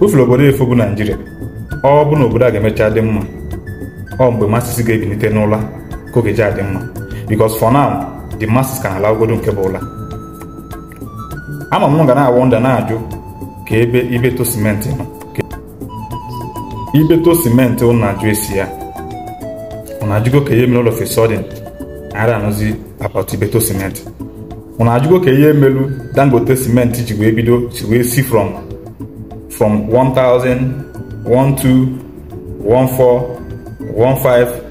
ufere obodo efu bụ naijiria ọ bụ na obodo a ga-emecha dị mma ọ mgbe masịsị ga-ebilite n'ụla ka oge ji adị mma because for now the masses ka na-ala ogodo nke bụ ụla ama m ga na-awọ nda na-ajụ ka ebe ibeto simenti nọ ibeto simenti ụnụ na-ajụ esi ya na ajụgo ka ihe mere ụlọ fesodin ara anụzi apat ibeto simenti na ajụgo ka ihe melu dangote simenti ji wee bido si wee si from from 1000, 12, 14, 15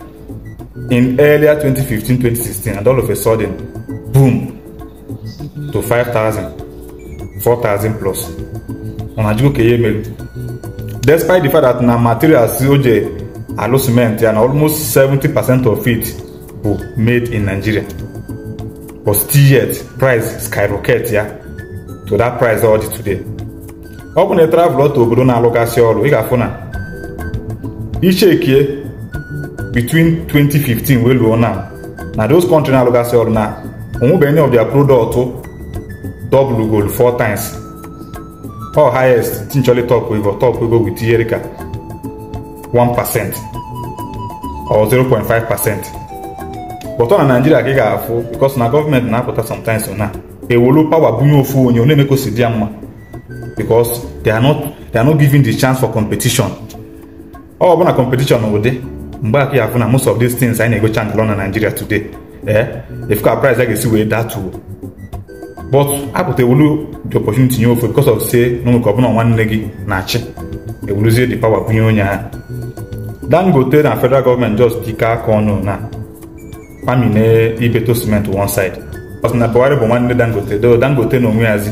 in earlier 2015, 2016, and all of a sudden, boom, to 5,000, 4,000 plus. On Ajikokeye Melu. Despite the fact that na materials COJ alo cement and almost 70% of it were made in Nigeria. But still yet, price skyrocket yeah, to that price already today. ọ bụ na ị e travel ọtọ obodo na-alụgasị ọrụ ị ga-afụ na ichekie between 2015 wee luo na na those country na-alụgasị ọrụ na onwebe any of their product w goal four times or highest tinchọli top ego top ego with ihe 1% or 0.5% but ọ na Naijiria ka ị ga-afụ because na gọọmenti na-apụta sometimes na ewolu pawa bunye ofu onye ọ na-emekosi dị ya mma because they are not they are not given the chance for competition ọ bụ na competition ụdị mgbe aka ya afụ na most of these things anyị na-egocha ngalọ na Nigeria today ee eh, ka price a ga-esi wee datuo but apụta ewulu the opportunity nye ofe because of say na nweke ọbụla nwanne gị na-achị ewuluzie the power bunye onye ahụ Dangote na federal gọọmenti just dike aka ọnụ na pamine ibeto cement one side na Buhari bụ nwanne Dangote do Dangote na onwe yazi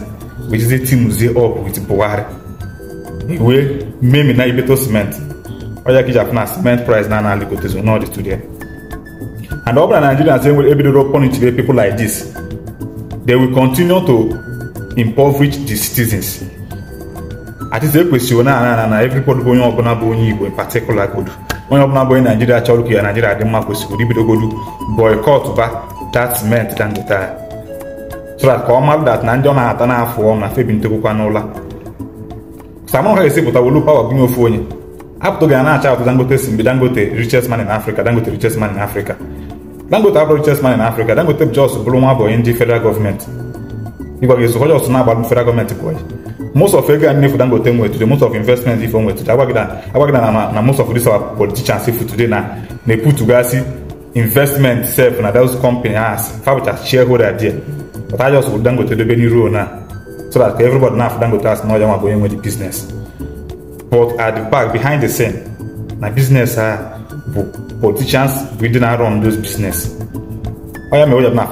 wejize tinuzie up with buhari iwe memi na ibeto cement ọya kija funa cement price na na ligotezo na ọdị studio. and ọ bụrụ na nigerians enwere ebidoro punichire people like this they will continue to impoverish the citizens atịtị ekwesịrị na ana na everybody bụ onye ọbụla bụ onye igbo in particular godu onye ọbụla bụ onye Nigeria chọrọ ka ya Nigeria, dị mma kwesịrị ibidogodu boycott ba that cement dangote so ka ọ marụ dat na ndị ọ na-ata n'afọ ọ na febi ntorokwa n'ụla samụn ha esipụta wolu pawa gụnye ofu onye apụtụghị a na-acha atụ dangote si mgbe dangote richest man in africa dangote richest man in africa dangote abụrụ richest man in africa dangote jos bụrụ nwa abụghị ndị federal gọọmenti ịgwa gị ezụkọ jos na-agbalụ federal gọọmenti bụ onye most of ego a nnefu dangote nwetụrụ most of investment ife nwetụrụ agwagị na na most of this our politicians ifu today na na-eputugasị investment sef na those company has fa shareholder there but I just would Dangote dobe n'iru na so that everybody na Dangote as na ọja bụ onye nwe the business but at the back behind the scene na business ha bụ politicians bụ ndị na-arun those business onye mere ụjọ na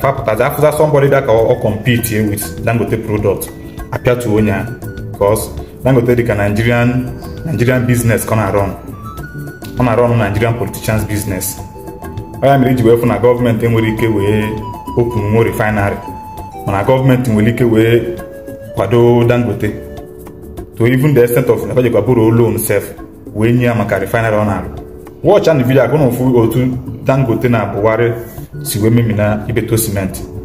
fapụtazi afụza somebody that ka ọ compete with Dangote product apịatu onye a because Dangote dịka Nigerian Nigerian business ka ọ na-arun ọ na-arun Nigerian politicians business onye mere iji wee fụ na gọọmenti enwere ike wee openwo refinery mana gọọmenti nwere ike wee kwado dangote to even the extent of nabajikwa bụrụ loan sef wee nye ya maka refinery ọ na-arụ wọch and vidio agụ otu dangote na-abụwarị si wee memina ibeto simenti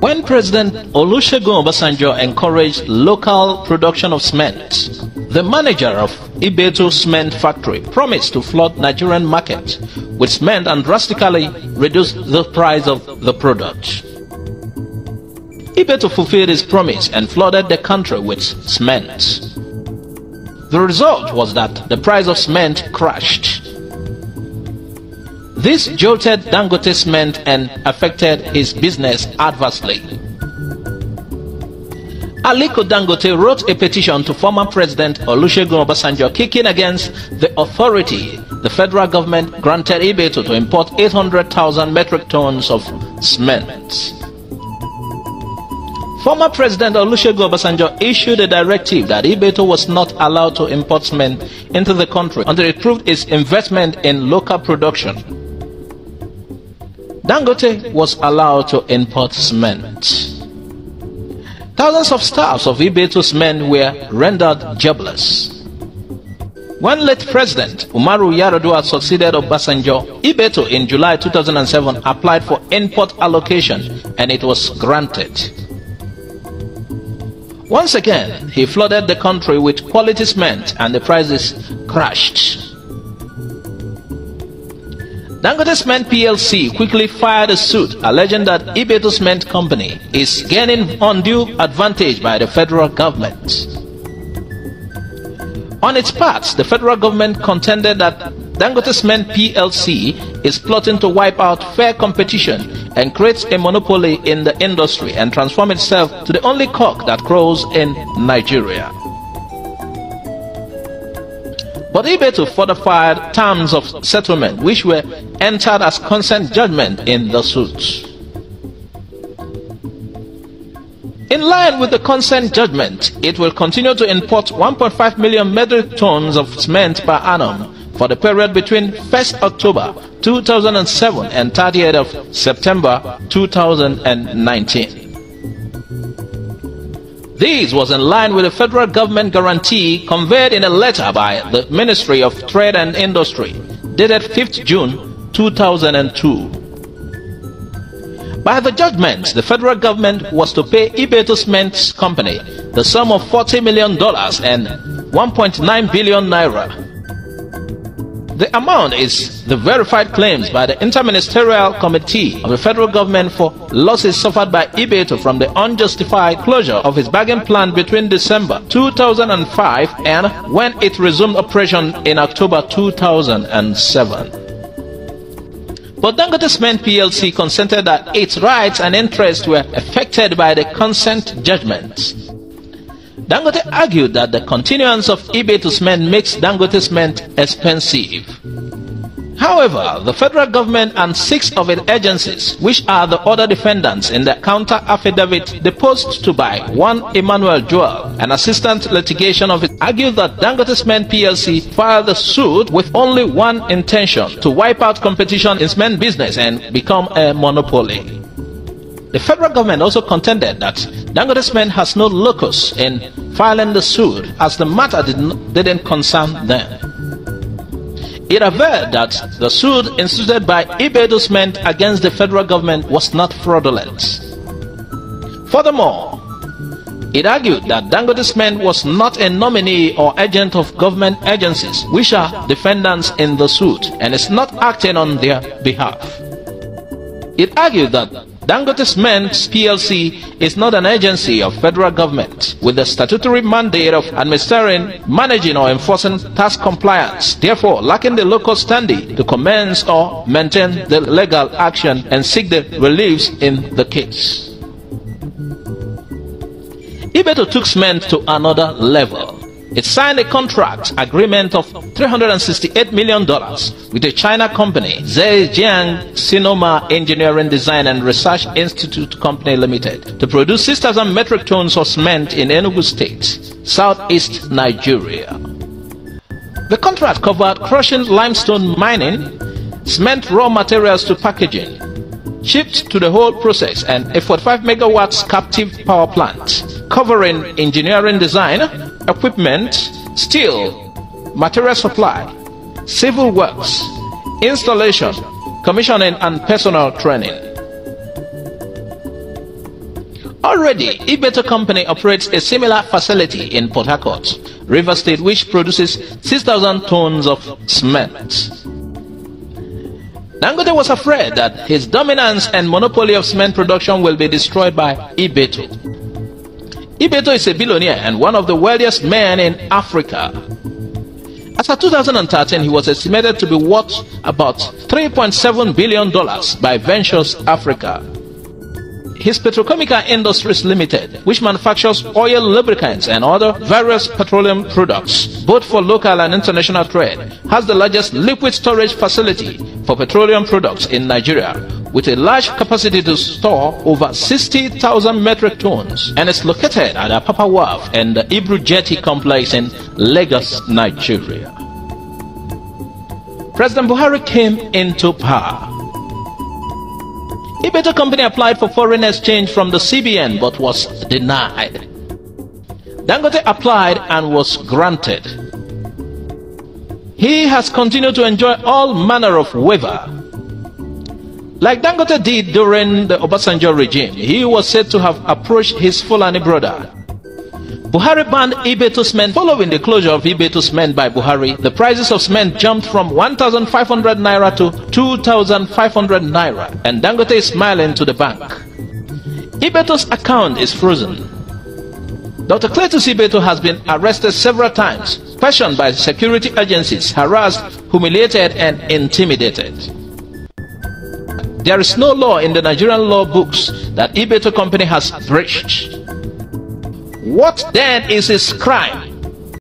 When President Olusegun Obasanjo encouraged local production of cement, the manager of Ibeto Cement Factory promised to flood Nigerian market with cement and drastically reduce the price of the product. Ibeto fulfilled his promise and flooded the country with cement. The result was that the price of cement crashed this jolted Dangote's cement and affected his business adversely. Aliko Dangote wrote a petition to former President Olusegun Obasanjo kicking against the authority the federal government granted Ibeto to import 800,000 metric tons of cement. Former President Olusegun Obasanjo issued a directive that Ibeto was not allowed to import cement into the country until it proved its investment in local production Dangote was allowed to import cement. Thousands of staffs of Ibeto's men were rendered jobless. When late President Umaru Yaradua succeeded Obasanjo, Ibeto in July 2007 applied for import allocation and it was granted. Once again, he flooded the country with quality cement and the prices crashed. Dangote Cement PLC quickly filed a suit alleging that Ibeto Cement Company is gaining undue advantage by the federal government. On its part, the federal government contended that Dangote Cement PLC is plotting to wipe out fair competition and create a monopoly in the industry and transform itself to the only cock that crows in Nigeria. But able to fortify terms of settlement which were entered as consent judgment in the suits. In line with the consent judgment, it will continue to import 1.5 million metric tons of cement per annum for the period between 1st October 2007 and 30th of September 2019. This was in line with a federal government guarantee conveyed in a letter by the Ministry of Trade and Industry dated 5th June 2002. By the judgment, the federal government was to pay eBay Cement Company the sum of $40 million and 1.9 billion naira the amount is the verified claims by the Interministerial Committee of the Federal Government for losses suffered by Ibeto from the unjustified closure of his bagging plant between December 2005 and when it resumed operation in October 2007. But Dangote Cement PLC consented that its rights and interests were affected by the consent judgment. Dangote argued that the continuance of eBay to cement makes Dangote's cement expensive. However, the federal government and six of its agencies, which are the other defendants in the counter affidavit deposed to by one Emmanuel Joel, an assistant litigation officer, argued that Dangote's men PLC filed the suit with only one intention to wipe out competition in cement business and become a monopoly. The federal government also contended that Dangote's men has no locus in filing the suit as the matter did not, didn't concern them. It averred that the suit instituted by Ibedo's men against the federal government was not fraudulent. Furthermore, it argued that Dangote's man was not a nominee or agent of government agencies, which are defendants in the suit, and is not acting on their behalf. It argued that Dangote Cement PLC is not an agency of federal government with the statutory mandate of administering, managing or enforcing tax compliance, therefore lacking the local standing to commence or maintain the legal action and seek the reliefs in the case. Ibeto took cement to another level. It signed a contract agreement of $368 million with a China company Zhejiang Sinoma Engineering Design and Research Institute Company Limited to produce 6,000 metric tons of cement in Enugu State, southeast Nigeria. The contract covered crushing limestone mining, cement raw materials to packaging, shipped to the whole process and a 45 megawatts captive power plant covering engineering design, equipment, steel, material supply, civil works, installation, commissioning, and personal training. Already, Ibeto Company operates a similar facility in Port Harcourt, River State, which produces 6,000 tons of cement. Nangode was afraid that his dominance and monopoly of cement production will be destroyed by Ibeto. Ibeto is a billionaire and one of the wealthiest men in Africa. As of 2013, he was estimated to be worth about $3.7 billion by Ventures Africa. His Petrochemical Industries Limited, which manufactures oil lubricants and other various petroleum products, both for local and international trade, has the largest liquid storage facility for petroleum products in Nigeria, with a large capacity to store over 60,000 metric tons and is located at Apapa Wharf and the Ibru Jetty complex in Lagos, Nigeria. President Buhari came into power. Ibeta Company applied for foreign exchange from the CBN but was denied. Dangote applied and was granted. He has continued to enjoy all manner of waiver like Dangote did during the Obasanjo regime, he was said to have approached his Fulani brother. Buhari banned Ibetu's men. Following the closure of Ibetu's men by Buhari, the prices of cement jumped from 1,500 naira to 2,500 naira, and Dangote is smiling to the bank. Ibeto's account is frozen. Dr. Cletus Ibetu has been arrested several times, questioned by security agencies, harassed, humiliated, and intimidated. There is no law in the Nigerian law books that Ibeto Company has breached. What then is his crime?